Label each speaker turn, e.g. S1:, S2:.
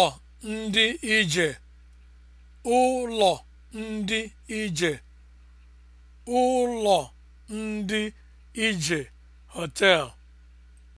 S1: ụlọ ndị ije ụlọ ndị ije ụlọ ndị ije
S2: hotel